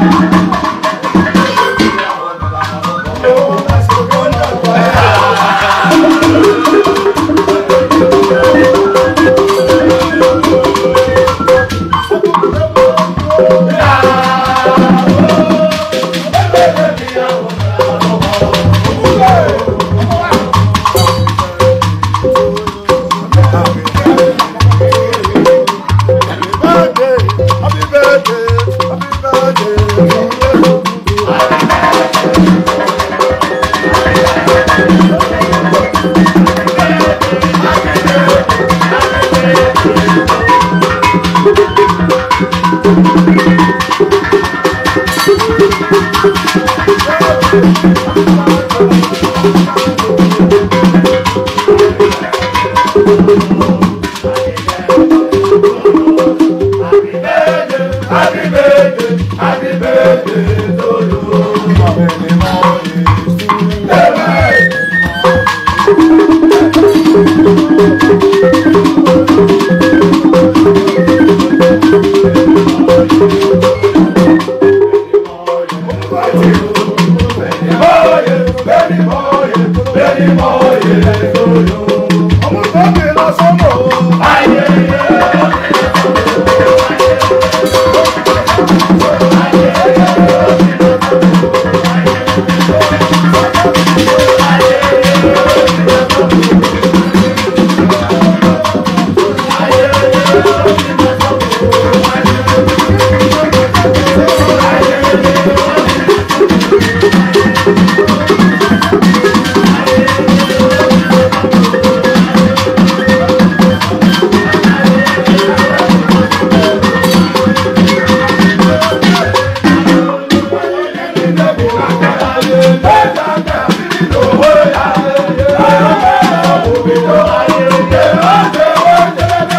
Thank you. sọ́mọ́.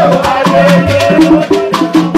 I Oh,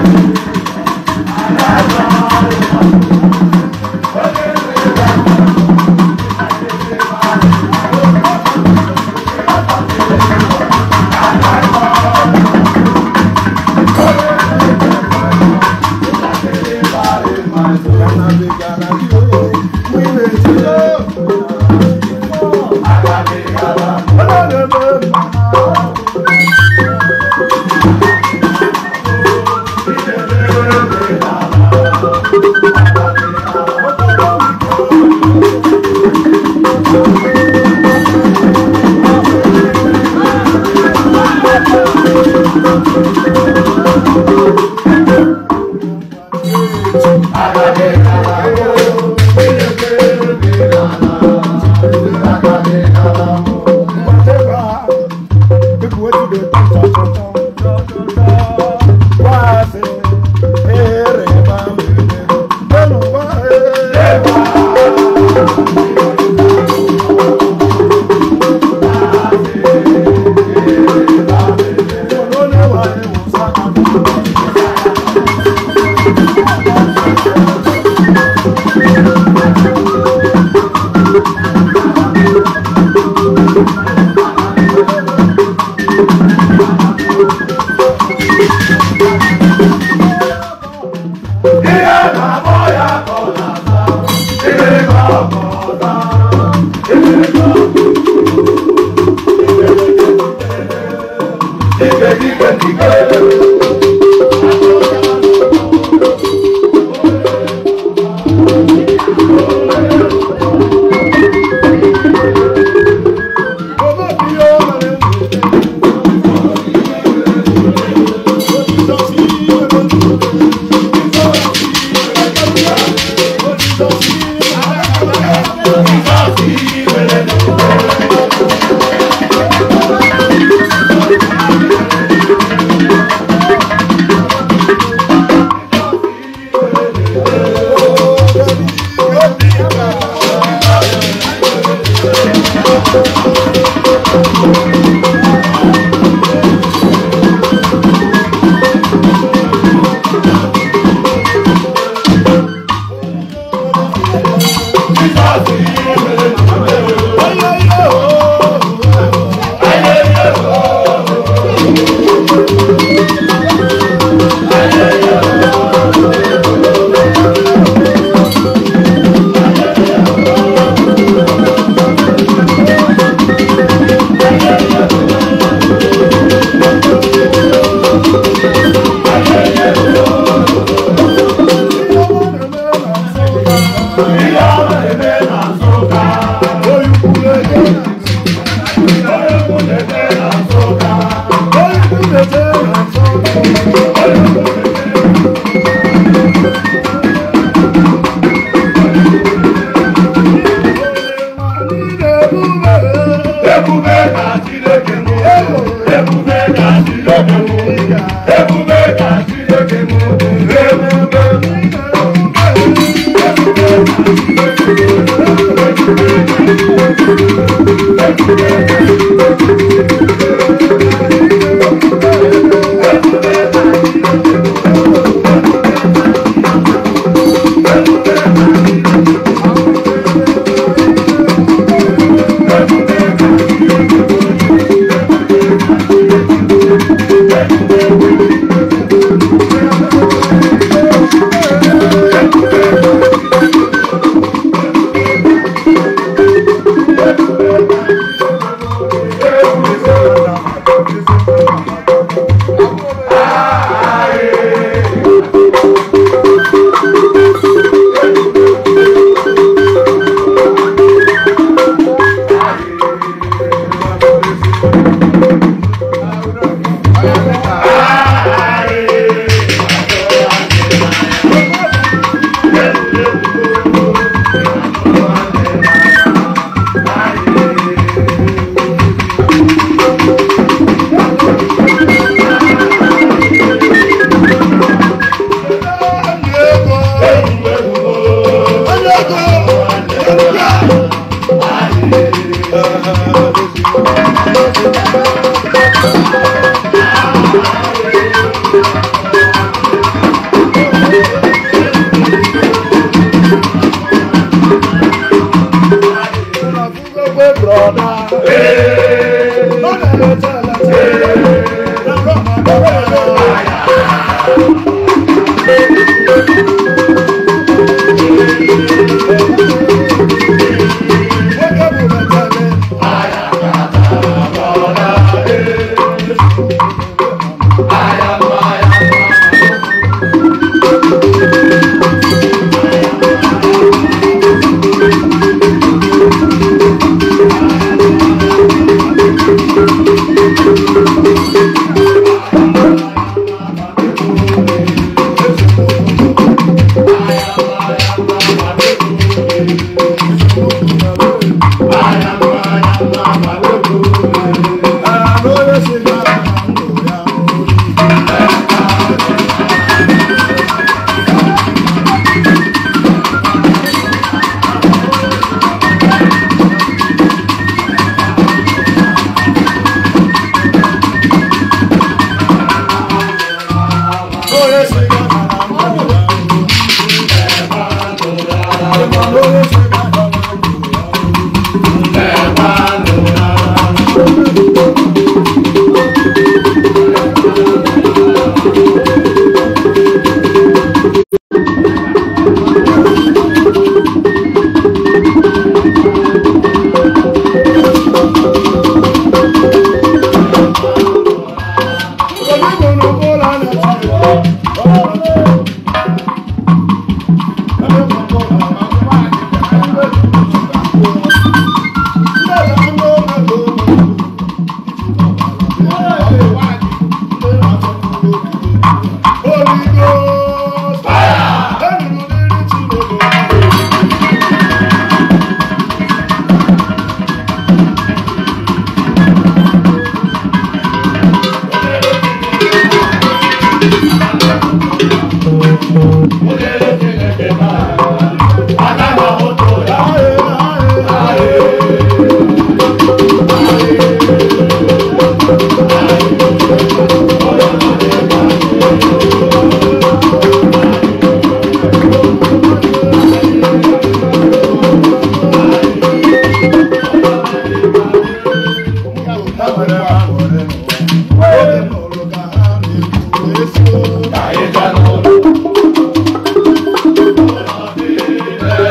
Thank you. Hare Rama I Lord,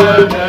Amen.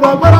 Baba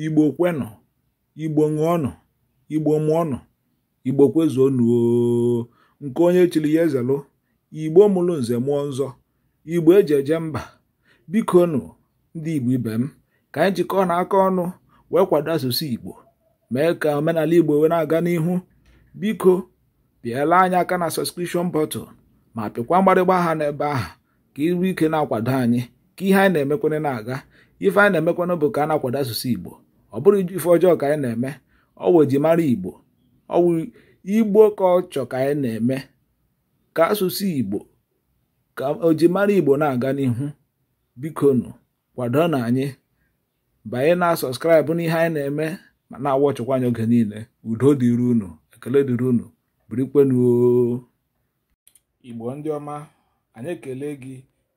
igbo kwenụ igbo ṅụọnụ igbo mụọnụ igbo kwezuonụ nke onye chiri ya ezelụ igbo mụrụ nze mụọ nzọ igbo eji eje mba biko nụ ndị igbo ibe m ka anyị jikọọ na aka ọnụ wee kwado asụsụ igbo mee ka omenala igbo wee na-aga n'ihu biko pịala anyị aka na sọskrishọn bọtụl ma pịkwa mgbarịgba aha n'ebe ahụ ka iru ike na-akwado anyị ihe anyị na-emekwana na-aga ife anyị na-emekwana bụ ka a na-akwado asụsụ igbo ọ bụrụ ife ọjọọ ka anyị na-eme ọwụ ji mara igbo ọwụ igbo ka ọ chọ ka anyị na-eme ka asụsụ igbo ka ojimara igbo na-aga n'ihu bikonu kwado na anyị banye na sọskraịbụ ihe anyị na-eme ma na-awọ ọchịkwa anyị oge niile udo dịrị unu ekele dịrị unu birikwenuo igbo ndị ọma anyị ekele gị